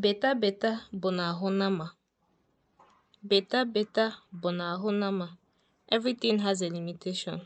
Beta beta bụ n'ahụ nama. Beta beta bụ n'ahụ nama. Everything has a limitation.